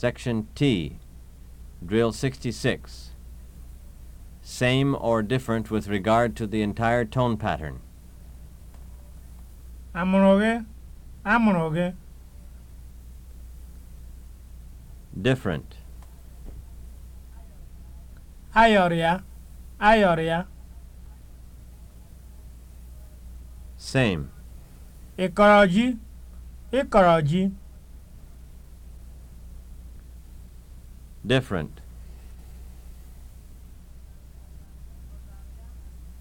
Section T, Drill 66. Same or different with regard to the entire tone pattern. Amụrụ gị? Amụrụ gị? Different. Ayọrọ ya? Ayọrọ ya? Same. ikoroji ikoroji. different.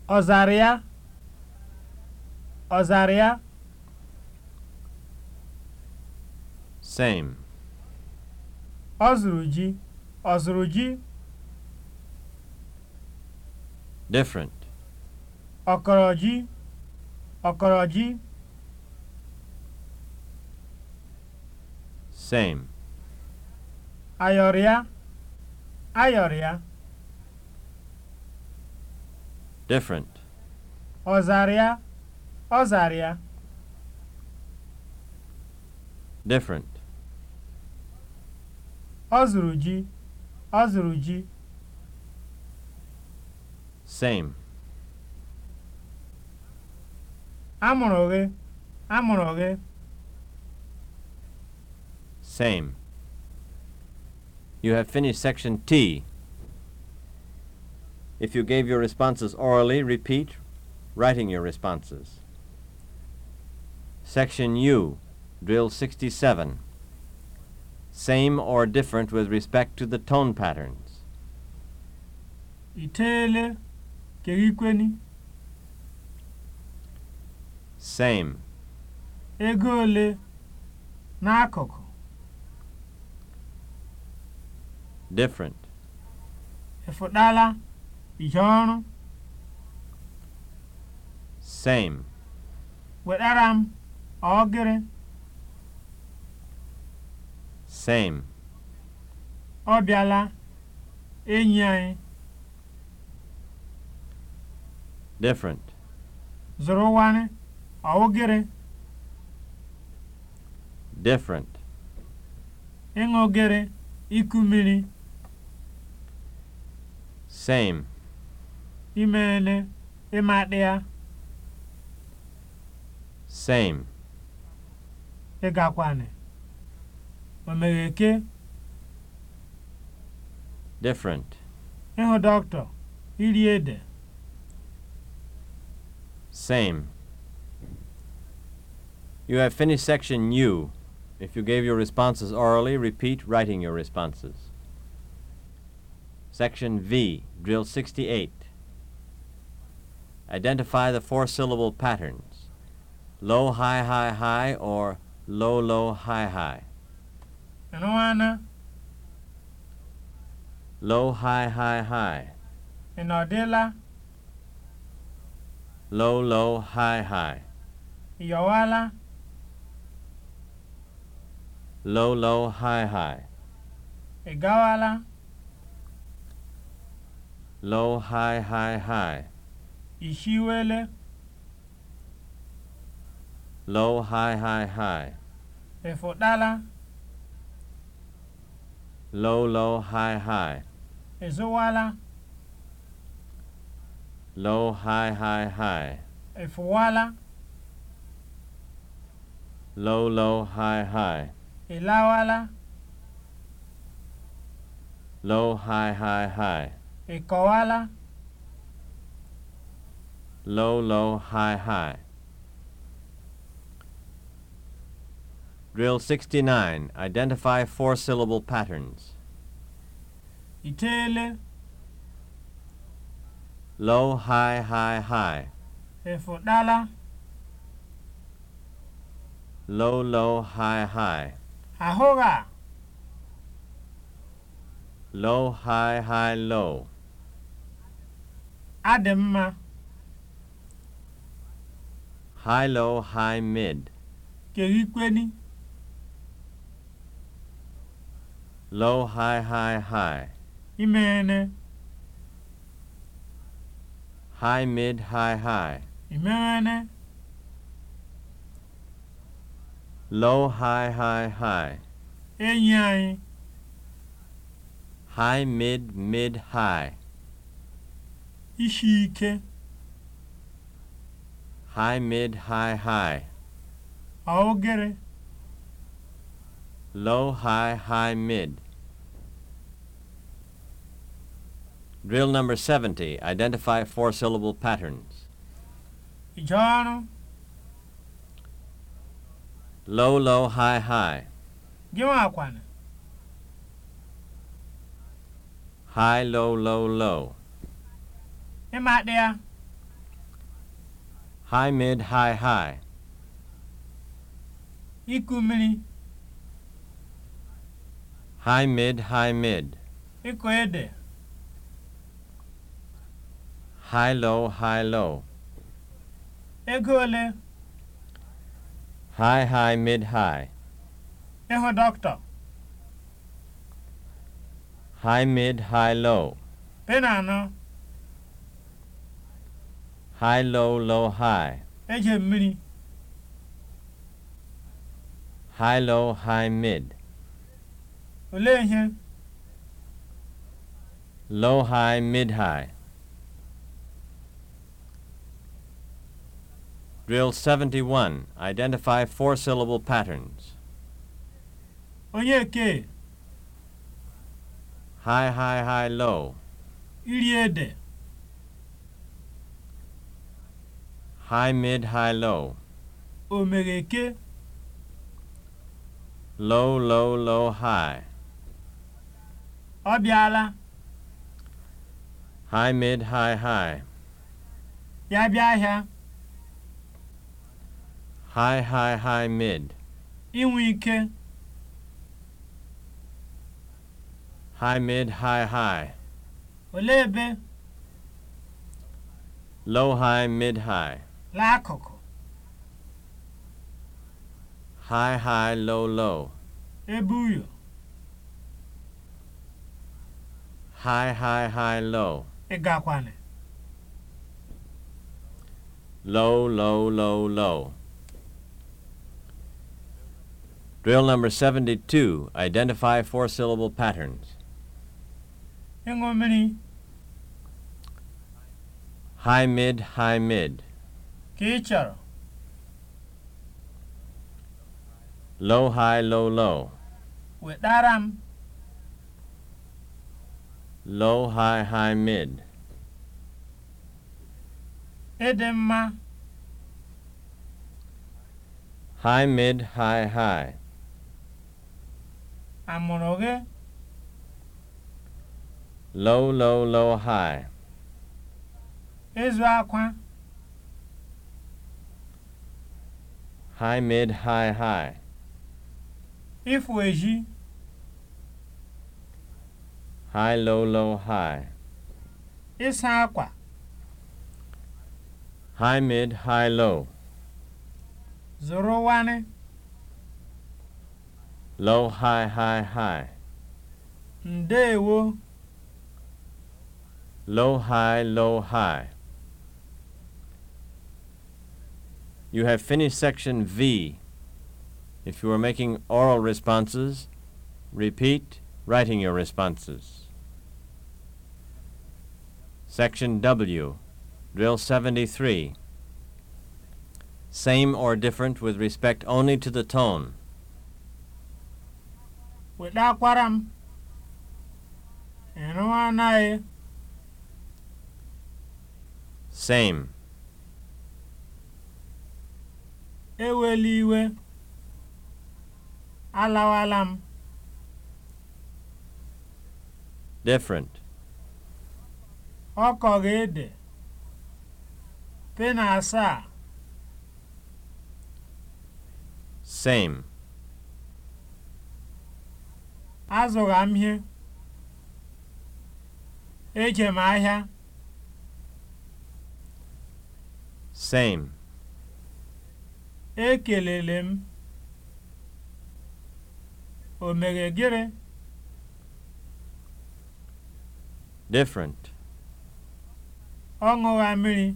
Ozaria Ozaria Same. Ozuruji Ozuruji Different. Okoroji Okoroji Same. ayọrịa ayọrịa different ọzarịa ọzarịa different ọ zụrụ ji ọ ji same amụrụ gị amụrụ gị same You have finished section T. If you gave your responses orally, repeat writing your responses. Section U, drill 67. Same or different with respect to the tone patterns. Itele kegikweni. Same. Egole n'akụkụ. different efudala ihe ọrụ same wetara m ọgịrị same ọ bịala enyi Different. different wani ọgịrị different ịṅụ gịrị iku mmiri Same. Imene, ịmadịa. Same. egakwane Omegheke. Different. Ịhụ dọkịta, iri ede. Same. You have finished section U. If you gave your responses orally, repeat writing your responses. Section V, Drill 68. Identify the four syllable patterns low, high, high, high, or low, low, high, high. Nwana. Low, high, high, high. Inodela. Low, low, high, high. Yowala. Low, low, high, high. Igawala. low high high high ihiwele low high high high efọdala low low high high ezowala low high high high efụwala low low high high ịlawala low high high high Ị kọwala? Low, low, high, high. Drill 69. Identify four-syllable patterns. Itele — Low, high, high, high. Efụdala. Low, low, high, high. Ahụgha. Low, high, high, low. adị mma high low high mid kweni. low high high high ene. high mid high high ene. low high high high enyi anyị high mid mid high ishi ike high mid high high Aogere. low high high mid drill number 70 identify four syllable patterns ije low low high high gịnwa akwana high low low low Em ạ đè. High mid high high. Iku mmiri. High mid high mid. ede. High low high low. Ego ole? High high mid high. Ịhụ dọkịta. High mid high low. anọ. high low low high eje mmiri high low high mid olee low high mid high Drill 71. Identify four-syllable patterns. Onyeke. High, high, high, low. Iriede. high, mid, high, low. Omereke. Low, low, low, high. Ọbịala. High, mid, high, high. Ya bịa ahịa. High, high, high, mid. inwike ike. High, mid, high, high. Olee ebe? Low, high, mid, high. L'akụkụ. High high low low. Ebe uyo. High high high low. Ịgakwanị. Low low low low. Drill number 72. Identify four syllable patterns. Ịṅụ mmiri. High mid, high mid. ka ị low high low low wetara m um, low high high mid ịdị mma high mid high high amụrụ gị low low low high ịzụ akwa high, mid, high, high. Efu eji. High, low, low, high. Ịsa akwa. High, mid, high, low. Zụrụ wani. Low, high, high, high. Ndeewo. Low, high, low, high. You have finished section V. If you are making oral responses, repeat writing your responses. Section W, Drill 73. Same or different with respect only to the tone. Weta Same. Ewela iwe, alawala m. Different. Ọ kọrọ ede, pena asaa. Same. Azụrụ m ihe. Eje m ahịa. Same. Ekelele m, o mere gịnị? Different. Ọ ṅụra mmiri.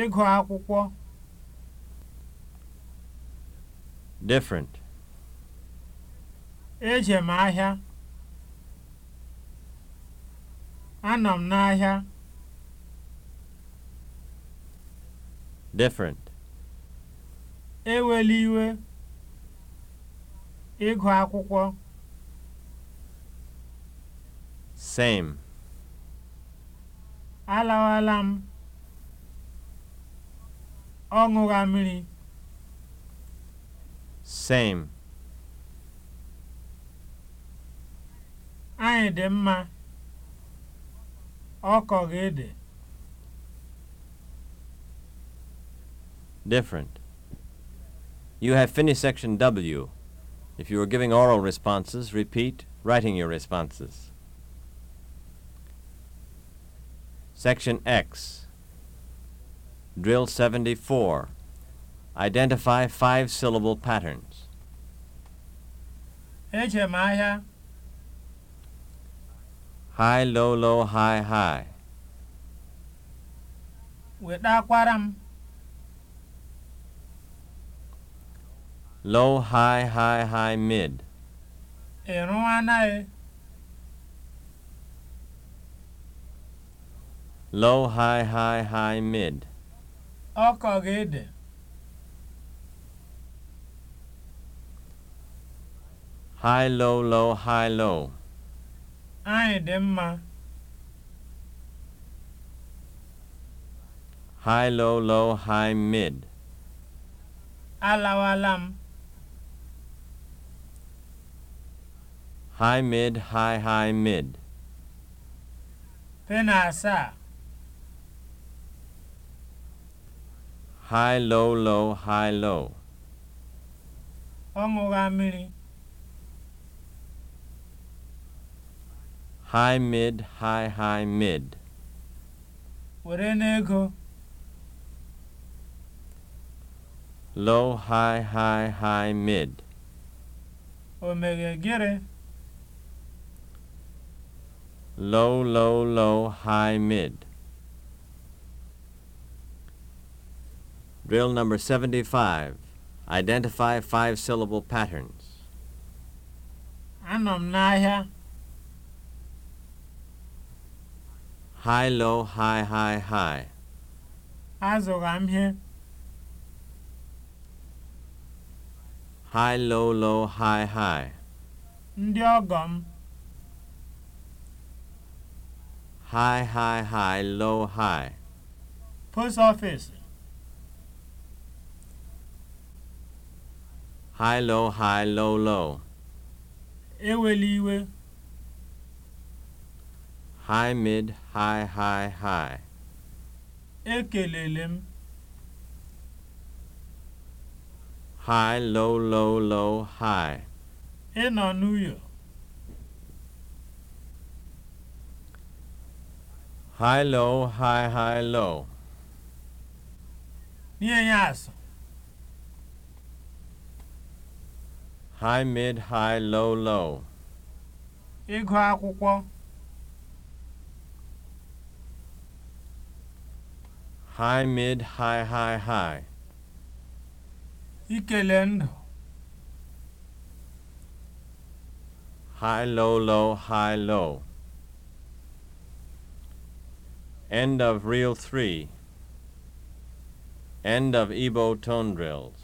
Ịgụ akwụkwọ. Different. Eje m ahịa. Anọ m n'ahịa. different ewela iwe ịgụ akwụkwọ same alawala m ọ mmiri same anyị dị mma ọ kọghị ede different. You have finished section W. If you are giving oral responses, repeat writing your responses. Section X. Drill 74. Identify five syllable patterns. Echemaya. High, low, low, high, high. Wetakwara low high high high mid ị anaghị. low high high high mid ọ kọrọ ede high low low high low anyị dị mma high low low high mid Alawalam. m high mid high high mid pe asaa high low low high low ọ ṅụgha high mid high high mid were n'ego low high high high mid o meghe low, low, low, high, mid. Drill number 75. Identify five syllable patterns. Anọ m n'ahịa. High, low, high, high, high. Azụra m ihe. High, low, low, high, high. Ndị ọgọ m. high, high, high, low, high. Post office. High, low, high, low, low. Eweliwe. High, mid, high, high, high. Ekelele m. High, low, low, low, high. Enonuyo. High low, high high low. Nienyaso. High mid, high low low. Ịgụ akwụkwọ. High mid, high high high. Ikele ndụ. High low low, high low. End of Reel 3. End of Ebo Tone Drills.